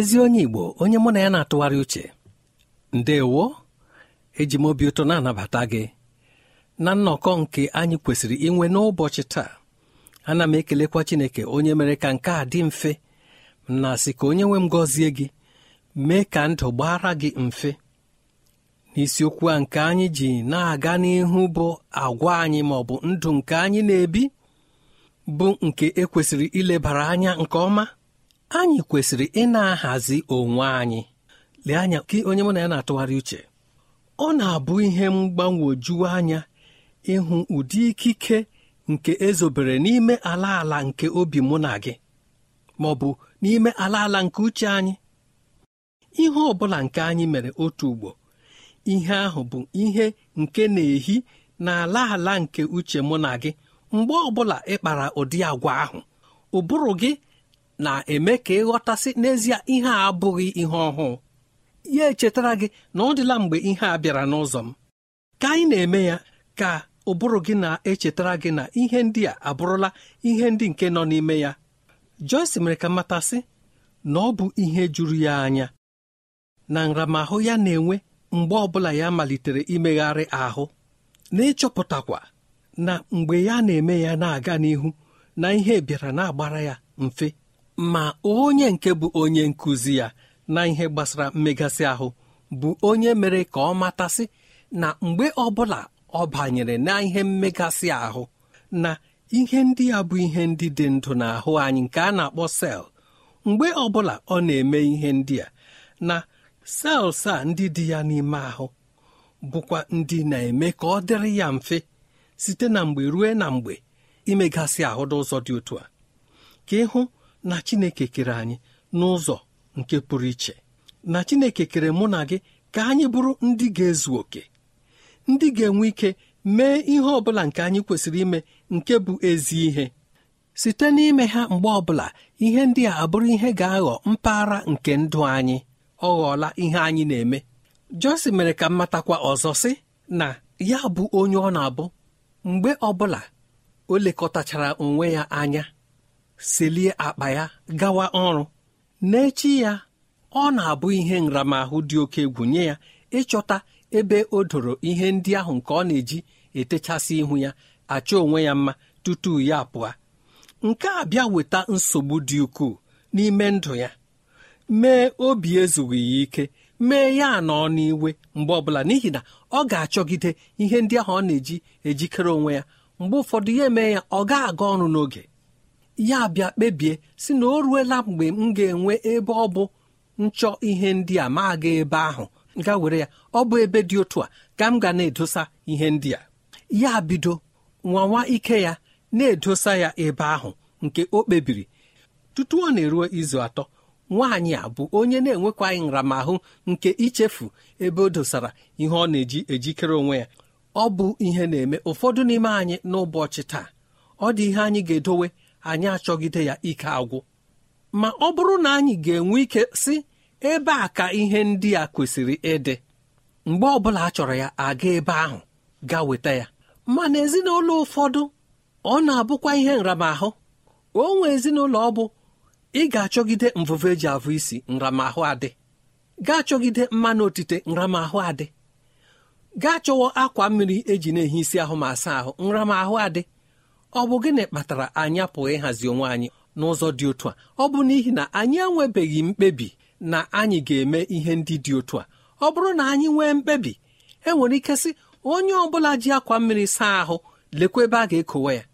ezi onye igbo onye mụ na ya na-atụgharị uche ndewo eji m obi ụtọ na-anabata gị na nnọkọ nke anyị kwesịrị inwe n'ụbọchị taa ana m ekelekwa chineke onye mere ka nke a dị mfe na sị ka onye nwe m gọzie gị mee ka ndụ gbara gị mfe n'isiokwu a nke anyị ji na-aga n'ihu bụ agwa anyị ma ọ bụ ndụ nke anyị na-ebi bụ nke ekwesịrị ilebara anya nke ọma anyị kwesịrị ị na-ahazi onwe anyị lee anya gị onye mụ na ya na-atụgharị uche ọ na-abụ ihe mgbanwoju anya ịhụ ụdị ikike nke ezobere n'ime ala ala nke obi mụ na gị ma ọ bụ n'ime ala ala nke uche anyị ihe ọ bụla nke anyị mere otu ugbo ihe ahụ bụ ihe nke na-ehi na ala ala nke uche mụ na gị mgbe ọ bụla ị kpara ụdị agwa ahụ ụbụrụ gị na-eme ka ịghọtasị n'ezie ihe a abụghị ihe ọhụụ ya echetara gị na ọ dịla mgbe ihe a bịara n'ụzọ m ka anyị na-eme ya ka ụbụrụ gị na-echetara gị na ihe ndị a abụrụla ihe ndị nke nọ n'ime ya Joyce mere ka matasị na ọ bụ ihe juru ya anya na nramahụ ya na-enwe mgbe ọbụla ya malitere imegharị ahụ na ịchọpụtakwa na mgbe ya na-eme ya na-aga n'ihu na ihe bịara na-agbara ya mfe ma onye nke bụ onye nkụzi ya na ihe gbasara mmegasị ahụ bụ onye mere ka ọ matasị na mgbe ọbụla ọ banyere na ihe mmegasị ahụ na ihe ndị ya bụ ihe ndị dị ndụ n'ahụ anyị nke a na-akpọ sel mgbe ọbụla ọ na-eme ihe ndị a na sels a ndị dị ya n'ime ahụ bụkwa ndị na-eme ka ọ dịrị ya mfe site na mgbe ruo na mgbe imegasị ahụ n'ụzọ dị otu a ka ịhụ na chineke kere anyị n'ụzọ nke pụrụ iche na chineke kere mụ na gị ka anyị bụrụ ndị ga-ezu oke ndị ga-enwe ike mee ihe ọ bụla nke anyị kwesịrị ime nke bụ ezi ihe site n'ime ha mgbe ọbụla ihe ndị a abụrụ ihe ga-aghọ mpaghara nke ndụ anyị ọ ghọọla ihe anyị na-eme Jọsi mere ka mmatakwa ọzọ sị na ya bụ onye ọ na-abụ mgbe ọbụla o lekọtachara onwe ya anya selie akpa ya gawa ọrụ n'echi ya ọ na-abụ ihe nramahụ dị oke egwu nye ya ịchọta ebe o doro ihe ndị ahụ nke ọ na-eji etechasị ihu ya achọ onwe ya mma tutu ya pụọ nke a bịa weta nsogbu dị ukwuu n'ime ndụ ya mee obi ezughị ya ike mee ya nọ n'iwe mgbe ọbụla n'ihi na ọ ga-achọgide ihe ndị ahụ ọ na-eji ejikere onwe ya mgbe ụfọdụ ya emee ya ọ ga-aga ọrụ n'oge ya bịa kpebie si na o ruela mgbe m ga-enwe ebe ọ bụ nchọ ihe ndị a ma aga ebe ahụ ga were ya ọ bụ ebe dị otu a ka m ga na-edosa ihe ndị a ya bido nwawa ike ya na-edosa ya ebe ahụ nke o kpebiri tutu ọ na-eruo izu atọ nwaanyị a bụ onye na-enwekwaghị nramahụ nke ichefu ebe o dosara ihe ọ na-eji ejikere onwe ya ọ bụ ihe na-eme ụfọdụ n'ime anyị n'ụbọchị taa ọ dị ihe anyị ga-edowe anyị achọgide ya ike agwụ ma ọ bụrụ na anyị ga-enwe ike si ebe a ka ihe ndị a kwesịrị ịdị mgbe ọbụla a chọrọ ya aga ebe ahụ gaa weta ya mana ezinụlọ ụfọdụ ọ na-abụkwa ihe nramahụ o nwe ezinụlọ ọ bụ ị ga-achọgide mvụvụ eji avụ isi nramahụ adị gaa chọgide mmanụ otite nramahụ adị gaa chọwa akwa mmiri eji na-ehi isi ahụ ma asa ahụ nramahụ adị ọ bụ gịnị kpatara anyị apụghị ịhazi onwe anyị n'ụzọ dị otu a ọ bụ n'ihi na anyị enwebeghị mkpebi na anyị ga-eme ihe ndị dị otu a ọ bụrụ na anyị nwee mkpebi e nwere ike sị onye ọ bụla ji akwa mmiri saa ahụ lekwa ebe a ga-ekowe ya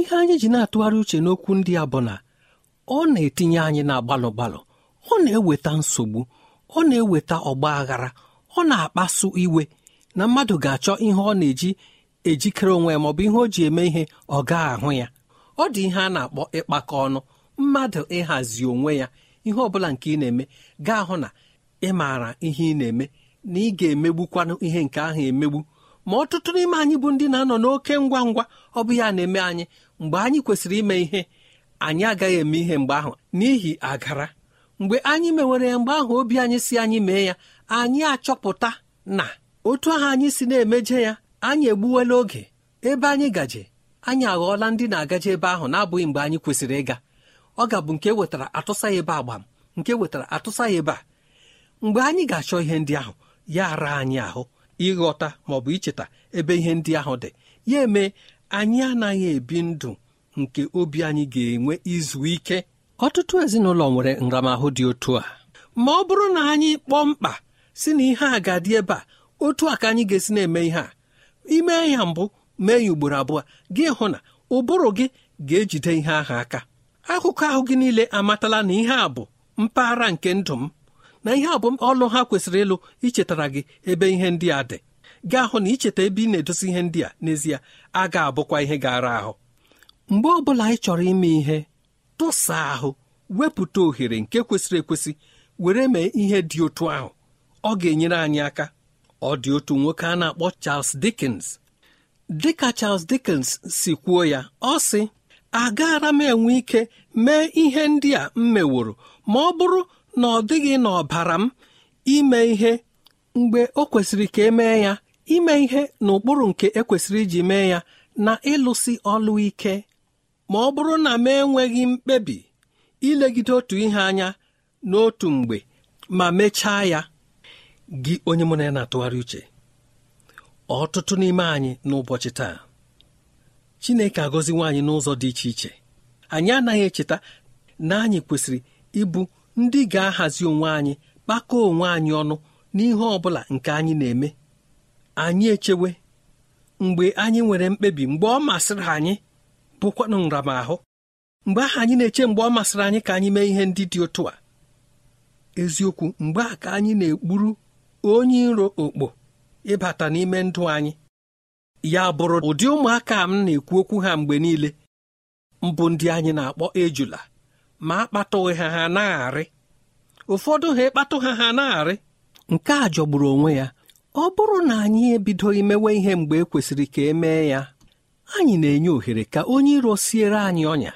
ihe anyị ji na-atụgharị uche n'okwu ndị a bụ na ọ na-etinye anyị na gbalụ gbalụ ọ na-eweta nsogbu ọ na-eweta ọgba aghara ọ na-akpasu iwe na mmadụ ga-achọ ihe ọ na-eji ejikere onwe ya bụ ihe o ji eme ihe ọ gaa ahụ ya ọ dị ihe a na-akpọ ịkpakọ ọnụ mmadụ ịhazi onwe ya ihe ọbụla nke ị na-eme gaa hụ na ị maara ihe ị na-eme na ị ga-emegbukwanụ ihe nke ahụ emegbu ma ọtụtụ n'ime anyị bụ ndị na-anọ n'oke ngwa ngwa ọ bụ ya na-eme anyị mgbe anyị kwesịrị ime ihe anyị agaghị eme ihe mgbe ahụ n'ihi agara mgbe anyị mewere ya mgbe ahụ obi anyị si anyị mee ya anyị achọpụta na otu ahụ anyị si na-emeje ya anyị egbuwela oge ebe anyị gaje anyị aghọọla ndị na-agaje ebe ahụ na-abụghị mgbe anyị kwesịrị ịga ọ ga-abụ nke wetara atụsa ya ebe agbam nke wetara atụsa ya ebe a mgbe anyị ga-achọ ihe ndị ahụ ya ara anyị ahụ ịghọta ma ọ bụ icheta ebe ihe ndị ahụ dị ya eme anyị anaghị ebi ndụ nke obi anyị ga-enwe izu ike ọtụtụ ezinụlọ nwere nramahụ dị otu a ma ọ bụrụ na anyị kpọọ mkpa si na ihe a ga-adị ebe a otu a ka anyị ga-esi na-eme ihe a ime ya mbụ mee ya ugboro abụọ gị hụ na ụbụrụ gị ga-ejide ihe ahụ aka akụkọ ahụ gị niile amatala na ihe a bụ mpaghara nke ndụ m na ihe a bụ ọlụ ha kwesịrị ịlụ ichetara gị ebe ihe ndị a dị gị hụ na icheta ebe ị na edosi ihe ndị a n'ezie a ga-abụkwa ihe gara ahụ mgbe ọ bụla ị chọrọ ime ihe tụsa ahụ wepụta ohere nke kwesịrị ekwesị were mee ihe dị otu ahụ ọ ga-enyere anyị aka ọ dị otu nwoke a na-akpọ Charles Dickens dịka Charles Dickens si kwuo ya ọ sị agaara m enwe ike mee ihe ndị a m meworo ma ọ bụrụ na ọ dịghị n'ọbara m ime ihe mgbe o kwesịrị ka emee ya ime ihe n'ụkpụrụ nke ekwesịrị iji mee ya na ịlụsi ọlụ ike ma ọ bụrụ na m enweghị mkpebi ilegide otu ihe anya n'otu mgbe ma mechaa ya gị onye mụ na ya na-atụgharị uche ọtụtụ n'ime anyị n'ụbọchị taa Chineke agọzi nwaanyị n'ụzọ dị iche iche anyị anaghị echeta na anyị kwesịrị ịbụ ndị ga-ahazi onwe anyị kpakọọ onwe anyị ọnụ n'ihe ọ bụla nke anyị na-eme anyị echewe mgbe anyị nwere mkpebi mgbe ọ masịrị anyị bụkwanụ nramahụ mgbe ahụ anyị na-eche mgbe ọ masịrị anyị ka anyị mee ihe ndị dị otu a eziokwu mgbe a ka anyị na-ekpuru onye iro okpo ịbata n'ime ndụ anyị ya bụrụ ụdị ụmụaka m na-ekwu okwu ha mgbe niile mbụ ndị anyị na-akpọ ejula ma akpatụghị ha ha na-arị ụfọdụ ha ịkpatụ ha ha na-arị nke a jọgburu onwe ya ọ bụrụ na anyị ebido imewe ihe mgbe e kwesịrị ka e mee ya anyị na-enye ohere ka onye iro siere anyị ọnya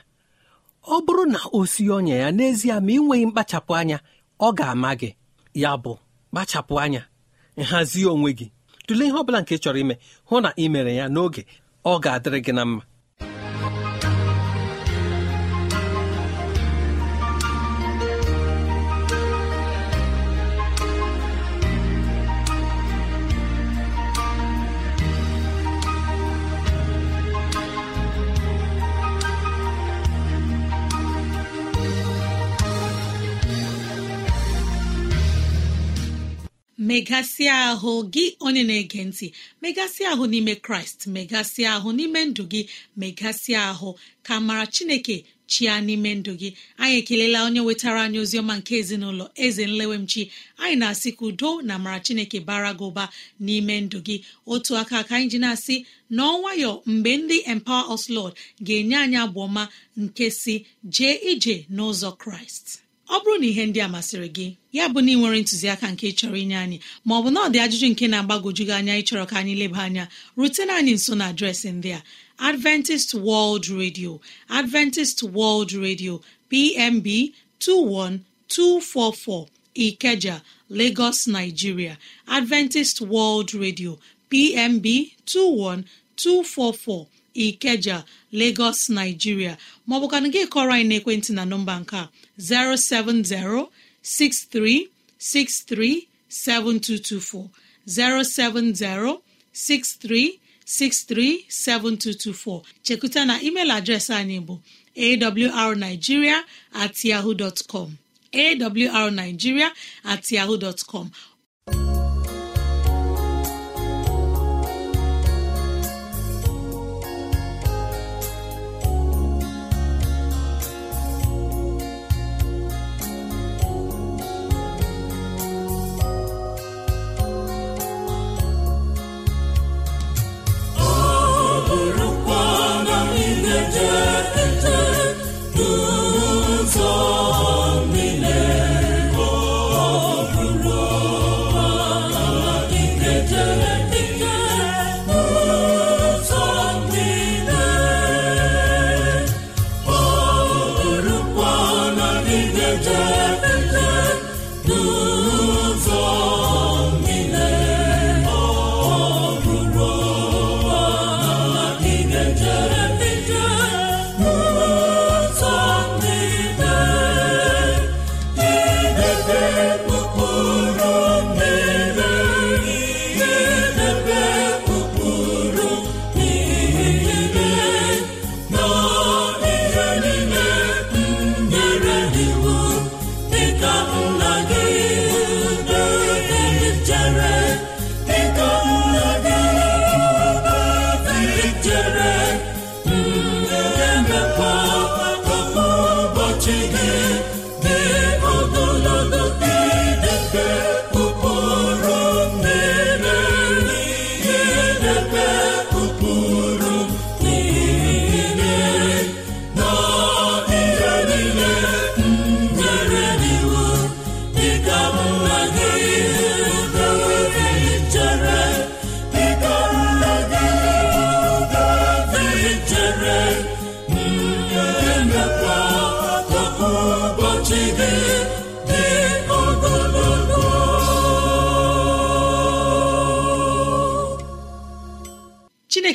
ọ bụrụ na o sie ọnya ya n'ezie ma ị nweghị mkpachapụ anya ọ ga-ama gị ya bụ kpachapụ anya nhazi onwe gị tụlee ihe ọ bụla nke chọrọ ime hụ na ị mere ya n'oge ọ ga-adịrị gị na mma megasị ahụ gị onye na-ege ntị megasịa ahụ n'ime kraịst megasịa ahụ n'ime ndụ gị megasịa ahụ ka mara chineke chia n'ime ndụ gị anyị ekelela onye wetara anyị ozi ọma nke ezinụlọ eze nlewemchi anyị na-asị ka udo na mara chineke bara gị ụba n'ime ndụ gị otu aka ka anyị ji na-asị n'ọnwayọ mgbe ndị empower us lord ga-enye anyị abụ nke si jee ije n'ụzọ kraịst ọ bụrụ na ihe ndị a masịrị gị ya bụ na ị nwere ntụziaka nke chọrọ inye anyị ma ọ bụ na ọ dị ajụjụ nke na agbagojugị anya ịchọrọ ka anyị leba anya rutena anyị nso na adreesị ndị a Adventist World Radio Adventist World Radio PMB 21244 Ikeja Lagos Nigeria Adventist World Radio PMB 21244 Ikeja Lagos Nigeria ka gị kọrọ anyị n'ekwentị na nọmba nke a 07063637224 07063637224 chekuta na email adreesị anyị bụ awrnigeria at yahoo dot com awrnigeria at yahoo dot com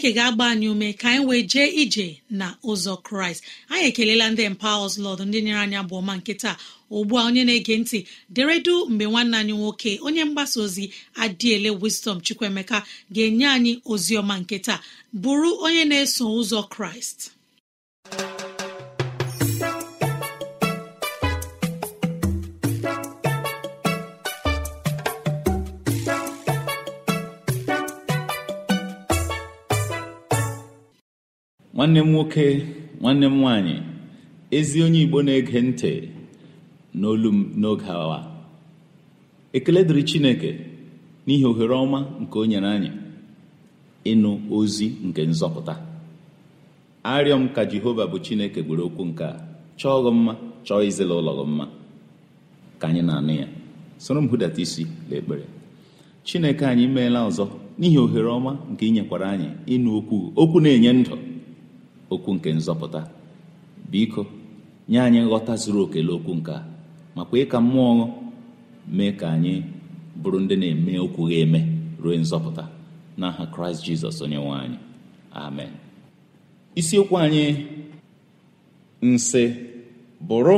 chineke ga-agba anyị ume ka anyị wee jee ije na ụzọ kraịst anyị ekelela ndị mpa ọzụlọdụ ndị nyere anyị bụ ọma nke ugbu a onye na-ege ntị deredu mgbe nwanne anyị nwoke onye mgbasa ozi adịele wisdom chukwuemeka ga-enye anyị ozi ọma nkịta bụrụ onye na-eso ụzọ kraịst nwanne m nwoke nwanne m nwanyị ezi onye igbo na-ege ntị n'olu m n'oge awa ekele dịrị chineke n'ihi ohere ọma nke o nyere anyị ịnụ ozi nke nzọpụta arịọ m ka jehova bụ chineke gwere okwu nke a chọọ gị mma chọọ izila ụlọ gị mma ka anyị na-anụ ya soro m hụdata isi n'ekpere chineke anyị meela ọzọ n'ihi ohere ọma nke ị nyekwara anyị ịnụ okwu okwu na-enye ndụ okwu nke nzọpụta biko nye anyị nghọta zuru oke okwu nke a ma kwee mmụọ mee ka anyị bụrụ ndị na-eme okwu ga-eme ruo nzọpụta n'aha kraịst jizọs onye nwe anyị amen isiokwu anyị nsị bụrụ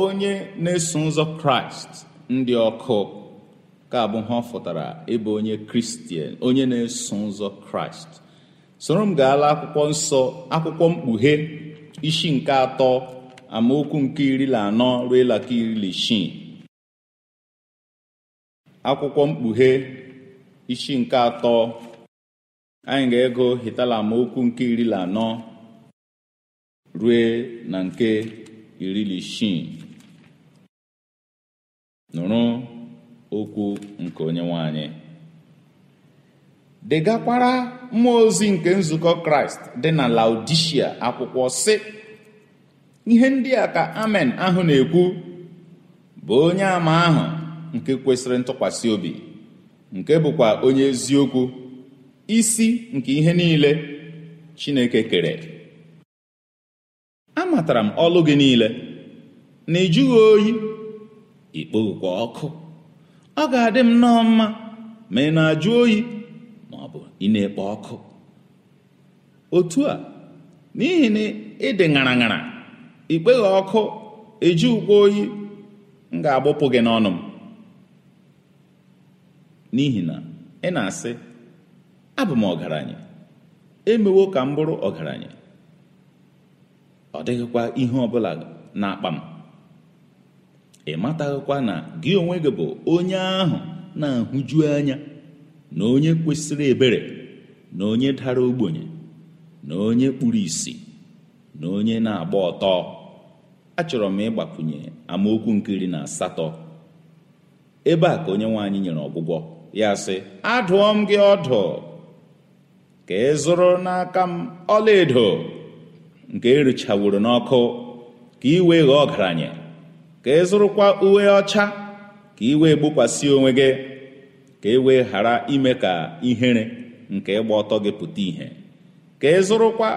onye na-eso ụzọ kraịst ndị ọkụ ka abụ ha ọ fụtara ịbụ onye kristian onye na-eso ụzọ kraịst soro m gaala akwụkwọ nsọ akwụkwọ mkpughe isi nke atọ amaokwu nke iri na anọ ruo laka iri na isii akwụkwọ mkpughe isi nke atọ anyị ga-ego hitala amaokwu nke iri na anọ rue na nke iri na isii nụrụ okwu nke onye nwanyị degakwara mmụọ ozi nke nzukọ kraịst dị na laodishia akwụkwọ sị ihe ndị a ka amen ahụ na-ekwu bụ onye ama ahụ nke kwesịrị ntụkwasị obi nke bụkwa onye eziokwu isi nke ihe niile chineke kere amatara m ọlụ gị niile na ịjụghị oyi ikpokwa ọkụ ọ ga-adị m nnọọ mma ma ị na-ajụ oyi bụ ị na ekpe ọkụ otu a n'ihi na ịdị ṅara ṅara ikpeghị ọkụ eji ukwu oyi m ga-agbụpụ gị n'ọnụ m n'ihi na ị na-asị abụ m ọgaranya emewo ka m bụrụ ọgaranya ọ dịghịkwa ihe ọbụla na-akpa m ị mataghịkwa na gị onwe gị bụ onye ahụ na-ahụju anya na onye kwesịrị ebere na onye dara ogbenye na onye kpuru ìsì na onye na-agba ọtọ achọrọ m ịgbakwunye amaokwu nke iri na asatọ ebe a ka onye nwe nyere ọgwụgwọ ya sị adụọ m gị ọdụ ka ị n'aka m ọlaedo nke erichawuru n'ọkụ ka ị wee ghọọ ọgaranya ka ị zụrụkwa uwe ọcha ka ị wee gbokwasị onwe gị ka e wee ghara ime ka ihere nke ịgba ọtọ gị pụta ìhè ka ị e zụrụkwa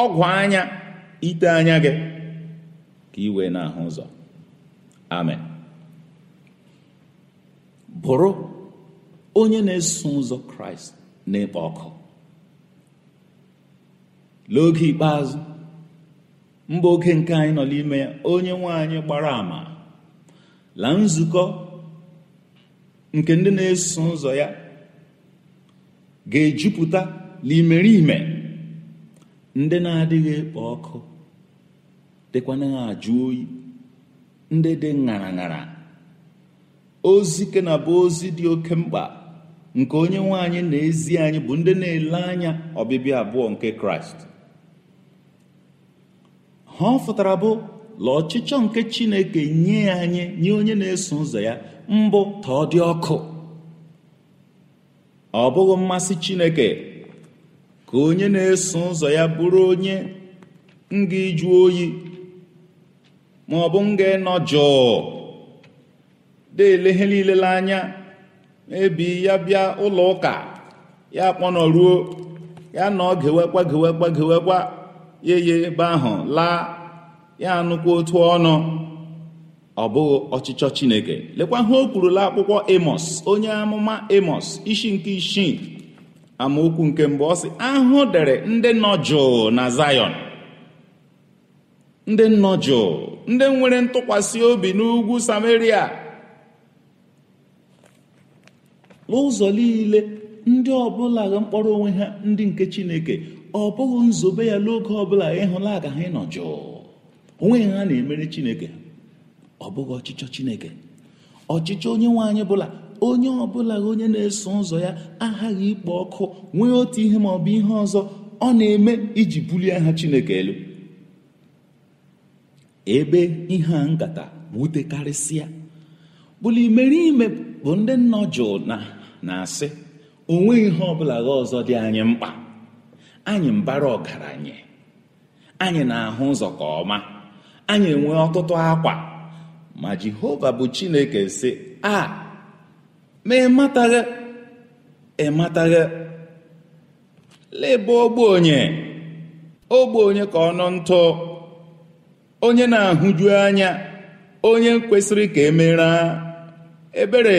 ọgwụ anya ite anya gị ka ị wee na-ahụ ụzọ amen bụrụ onye na-eso ụzọ kraịst na-ekpo ọkụ n'oge ikpeazụ mba oge nke anyị nọ n'ime ya onye nwe anyị gbara ama la nzukọ nke ndị na-eso ụzọ ya ga-ejupụta n'imeriime ndị na-adịghị ekpo ọkụ dịkwanaghị ajụ oyi ndị dị ṅara ṅara ozi ike na bụ ozi dị oke mkpa nke onye nwanyị na ezi anyị bụ ndị na-ele anya ọbịbịa abụọ nke kraịst ha ọ fụtara bụ la ọchịchọ nke chineke nye anyị nye onye na-eso ụzọ ya mbụ ka ọ dị ọkụ ọ bụghị mmasị chineke ka onye na-eso ụzọ ya bụrụ onye nga iju oyi ma ọ bụ nga ịnọ jụụ deele niile anya ebi ya bịa ụlọ ụka ya kpọnọruo ya nọ gewekwa gewekwa gewekwa yeye ebe ahụ laa ya anụkwa otu ọnụ ọ bụghị ọchịchọ chineke lekwa ha o kwurula akwụkwọ emos onye amụma emos ishi nke isii amaokwu nke mbụ ọ sị ahụ dere ndị nọ na Zion; ndị nọ ndị nwere ntụkwasị obi n'ugwu Samaria n'ụzọ niile ndị ọbụla ga mkpọrọ onwe ha ndị nke chineke ọ bụghị nzube ya n'oge ọbụla ịhụla aga ha onwe ha na-emere chineke ọ bụghị ọchịchọ chineke ọchịchọ onye nwe anyị bụla onye ọbụla onye na-eso ụzọ ya aghaghị ikpo ọkụ nwee otu ihe ma ọ bụ ihe ọzọ ọ na-eme iji bulie aha chineke elu ebe ihe a nkata wutekarịsịa bụla imerime bụ ndị nọ jụụ na na-asị onwe ihe ọbụla gha ọzọ dị anyị mkpa anyị mbara ọgaranya anyị na-ahụ ụzọ ka ọma anyị enwe ọtụtụ akwa ma jehova bụ chineke sị a ma ịmataghị ịmataghị leba ogbenye ogbenye ka ọ nọ ntụ onye na-ahụju anya onye kwesịrị ka emera ebere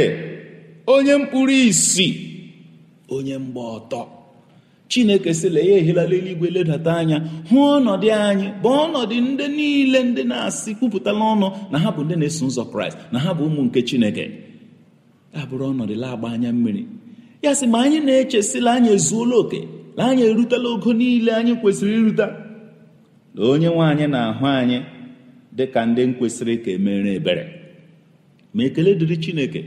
onye mkpụrụ isi onye mgba ọtọ chineke sịla ya ehilala eluigwe ledata anya hụ ọnọdụ anyị bụ ọnọdụ ndị niile ndị na-asị kwupụtala ọnụ na ha bụ ndị na-eso ụzọ kraịst na ha bụ ụmụ nke chineke abụrụ ọnọdụ lagba anya mmiri ya sị ma anyị na-echesila anyị ezuola oke na anyị erutela ogo niile anyị kwesịrị irute na onye nwe anyị na-ahụ anyị dị ka ndị kwesịrị ka emere ebere ma ekele dịrị chineke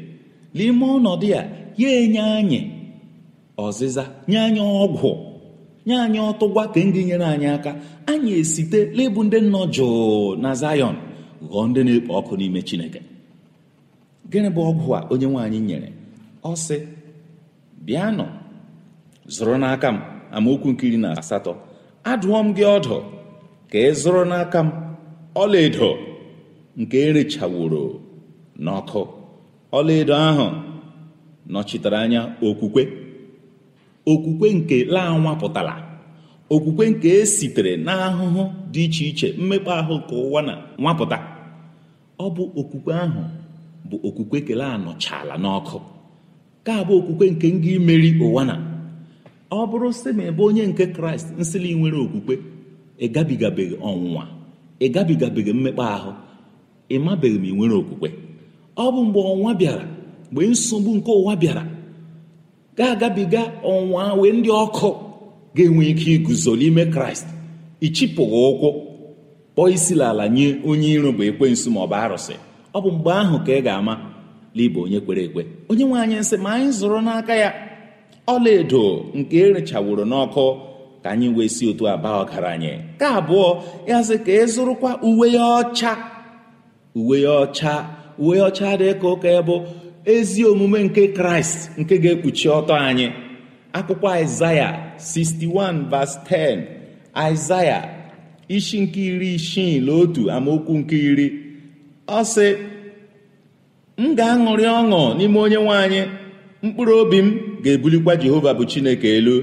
n'ime ọnọdụ ya ya enye anyị ọzịza nye anyị ọgwụ nye anyị ọtụgwa ka ndị nyere anyị aka anyị esite n'ịbụ ndị nọ jụụ na Zion ghọọ ndị na-ekpo ọkụ n'ime Chineke gịnị bụ ọgwụ a onye nwe anyị nyere ọ sị bịanụ zụrụ n'aka m amaokwu nke iri na asatọ adụọ m gị ọdụ ka ị zụrụ n'aka m ọlaedo nke erechaworo n'ọkụ ọlaedo ahụ nọchitere anya okwukwe okwukwe nke laa nwapụtara okwukwe nke e sitere n'ahụhụ dị iche iche mmekpa ahụ nke ụwa na nwapụta ọ bụ okwukwe ahụ bụ okwukwe kele anọchala n'ọkụ ka bụ okwukwe nke ngị imeri ụwa na ọ bụrụ sị ma ebe onye nke kraịst nsịlị nwere okwukwe ịgabigabeghị ọnwụnwa ịgabigabeghị mmekpa ahụ ịmabeghị ma ị nwere okwukwe ọ bụ mgbe ọnwa bịara mgbe nsogbu nke ụwa bịara ga-agabiga ọnwa wee ndị ọkụ ga-enwe ike iguzo n'ime kraịst ichipụghị ụkwụ kpọọ isi n'ala nye onye iro bụ ekwensu ma ọ bụ arụsị ọ bụ mgbe ahụ ka ị ga-ama liba onye kwere ekwe onye nwe anyị nsị ma anyị zụrụ n'aka ya ọlaedo nke erechaworo n'ọkụ ka anyị wee si otu abaa ọgaranya ka abụọ ya sị ka ị e zụrụkwa uwe ya ọcha uwe ya ọcha uwe ya ọcha dị ka ụka ya ezi omume nke kraịst nke ga-ekpuchi ọtọ anyị akwụkwọ aịzaya 61 verse 10 aịzaya isi nke iri isii na otu amaokwu nke iri ọ sị m ga-aṅụrị ọṅụ n'ime onye nwe mkpụrụ obi m ga-ebulikwa jehova bụ chineke elu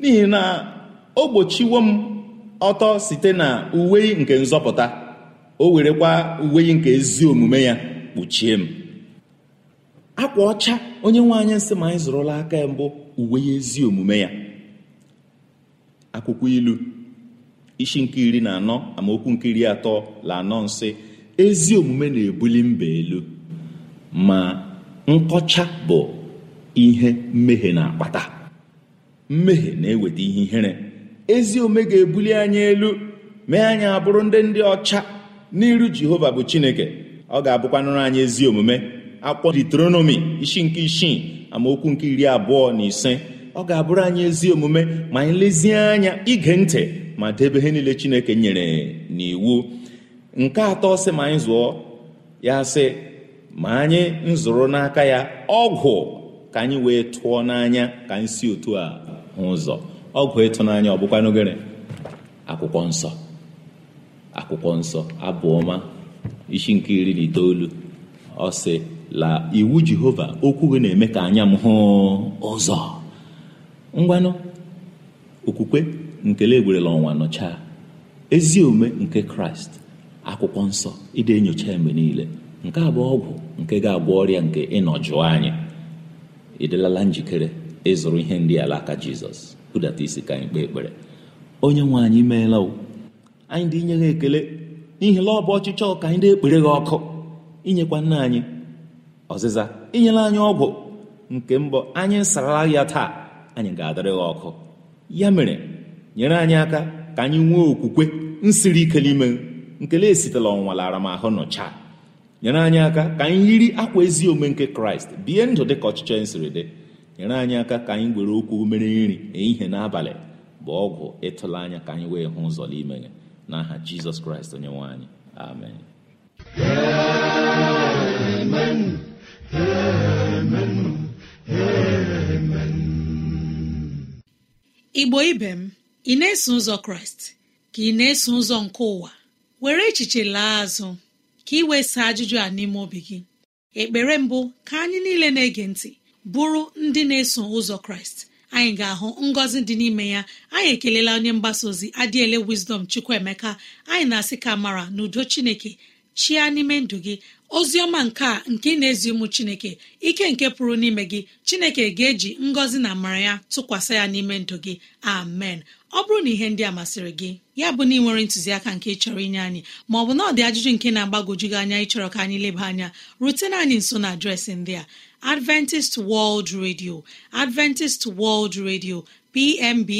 n'ihi na o gbochiwo m ọtọ site na uwe nke nzọpụta o werekwa uwe nke ezi omume ya kpuchie m akwa ọcha onye nwe anyị nsị ma anyị zụrụla aka ya mbụ uwe ezi omume ya akwụkwọ ilu isi nke iri na anọ amaokwu nke iri atọ la anọ nsị ezi omume na-ebuli mba elu ma nkọcha bụ ihe mmehie na-akpata mmehie na-eweta ihe ihere ezi omume ga-ebuli anyị elu mee anyị abụrụ ndị ndị ọcha n'iru Jehova bụ Chineke ọ ga-abụkwanụrụ anyị ezi omume akwụkwọ Deuteronomy isi nke isii amaokwu nke iri abụọ na ise ọ ga-abụrụ anyị ezi omume ma anyị lezie anya ige ntị ma debe ihe niile Chineke nyere n'iwu nke atọ sị ma anyị zụọ ya sị ma anyị nzụrụ n'aka ya ọgwụ ka anyị wee tụọ n'anya ka anyị si otu a hụ ụzọ ọgwụ ịtụnanya ọ bụkwa n'ogere akwụkwọ nsọ akwụkwọ nsọ abụọma isi nke iri na itoolu ọ sị la iwu jehova okwu gị na-eme ka anya m hụ ụzọ ngwanụ okwukwe nkele legwerela ọnwa nọchaa ezi ome nke kraịst akwụkwọ nsọ ide enyocha mgbe niile nke a bụ ọgwụ nke ga-agwọ ọrịa nke ịnọ jụọ anyị ịdịlala njikere ịzụrụ ihe ndị ala aka jizọs budata isi ka anyị kpee ekpere onye nwe anyị meela anyị dị inye ha ekele n'ihi la ọ bụ ọchịchọ ka anyị dị ekpere gị ọkụ inyekwa nna anyị ọzịza inyela anyị ọgwụ nke mbọ anyị sarala ya taa anyị ga-adịrị ọkụ ya mere nyere anyị aka ka anyị nwee okwukwe nsiri ike n'ime nkele esitela ọnwa lara m ahụ nọchaa nyere anyị aka ka anyị yiri akwa ezi omume nke kraịst bie ndụ dị ka ọchịchọ anyị siri dị nyere anyị aka ka anyị were okwu mere nri e ihe n'abalị bụ ọgwụ ịtụla anya ka anyị wee hụ ụzọ n'ime ya aha jizọs kraịst onye nwe anyị amen amen igbo ibe m ị na-eso ụzọ kraịst ka ị na-eso ụzọ nke ụwa were echiche laa azụ ka ị wee saa ajụjụ a n'ime obi gị ekpere mbụ ka anyị niile na-ege ntị bụrụ ndị na-eso ụzọ kraịst anyị ga-ahụ ngọzi dị n'ime ya anyị ekelela onye mgbasa ozi adịele wisdom chukwuemeka anyị na-asị ka mara na chineke chia n'ime ndụ gị ozi ọma nke a nke ị na-ezi ụmụ chineke ike nke pụrụ n'ime gị chineke ga-eji ngọzi na amara ya tụkwasị ya n'ime ndụ gị amen ọ bụrụ na ihe ndị a masịrị gị ya bụ na ị nwere ntụziaka nke chọrọ inye anyị ma ọ bụ na ọ dị ajụjụ nke na-agbagwoju gị anya ịchọrọ ka anyị leba anya rutena anyị nso na adreesị ndị a Adventist World Radio Adventist World Radio PMB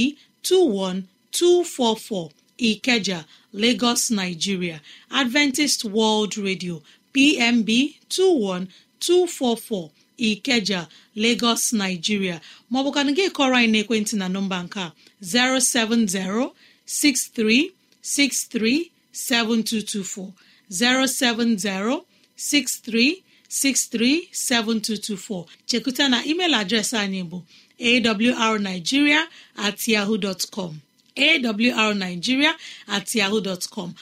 244. Ikeja Lagos Nigeria Adventist World Radio PMB 21244 Ikeja Lagos Nigeria maọbụkana gị kọrọ anyị ekwentị na nọmba nke a 070 07063 7224. chekuta na email adreesị anyị bụ awrnigeria at yahoo com awrnigeria at yahoo dọtcọm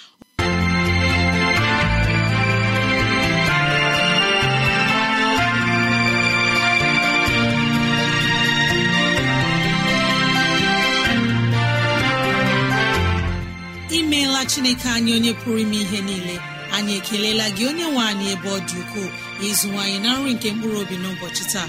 imeela chineke anyị onye pụrụ ime ihe niile anyị ekelela gị onye nwe anyị ebe ọ dị ukwuu ịzụwanyị na nri nke mkpụrụ obi n'ụbọchị taa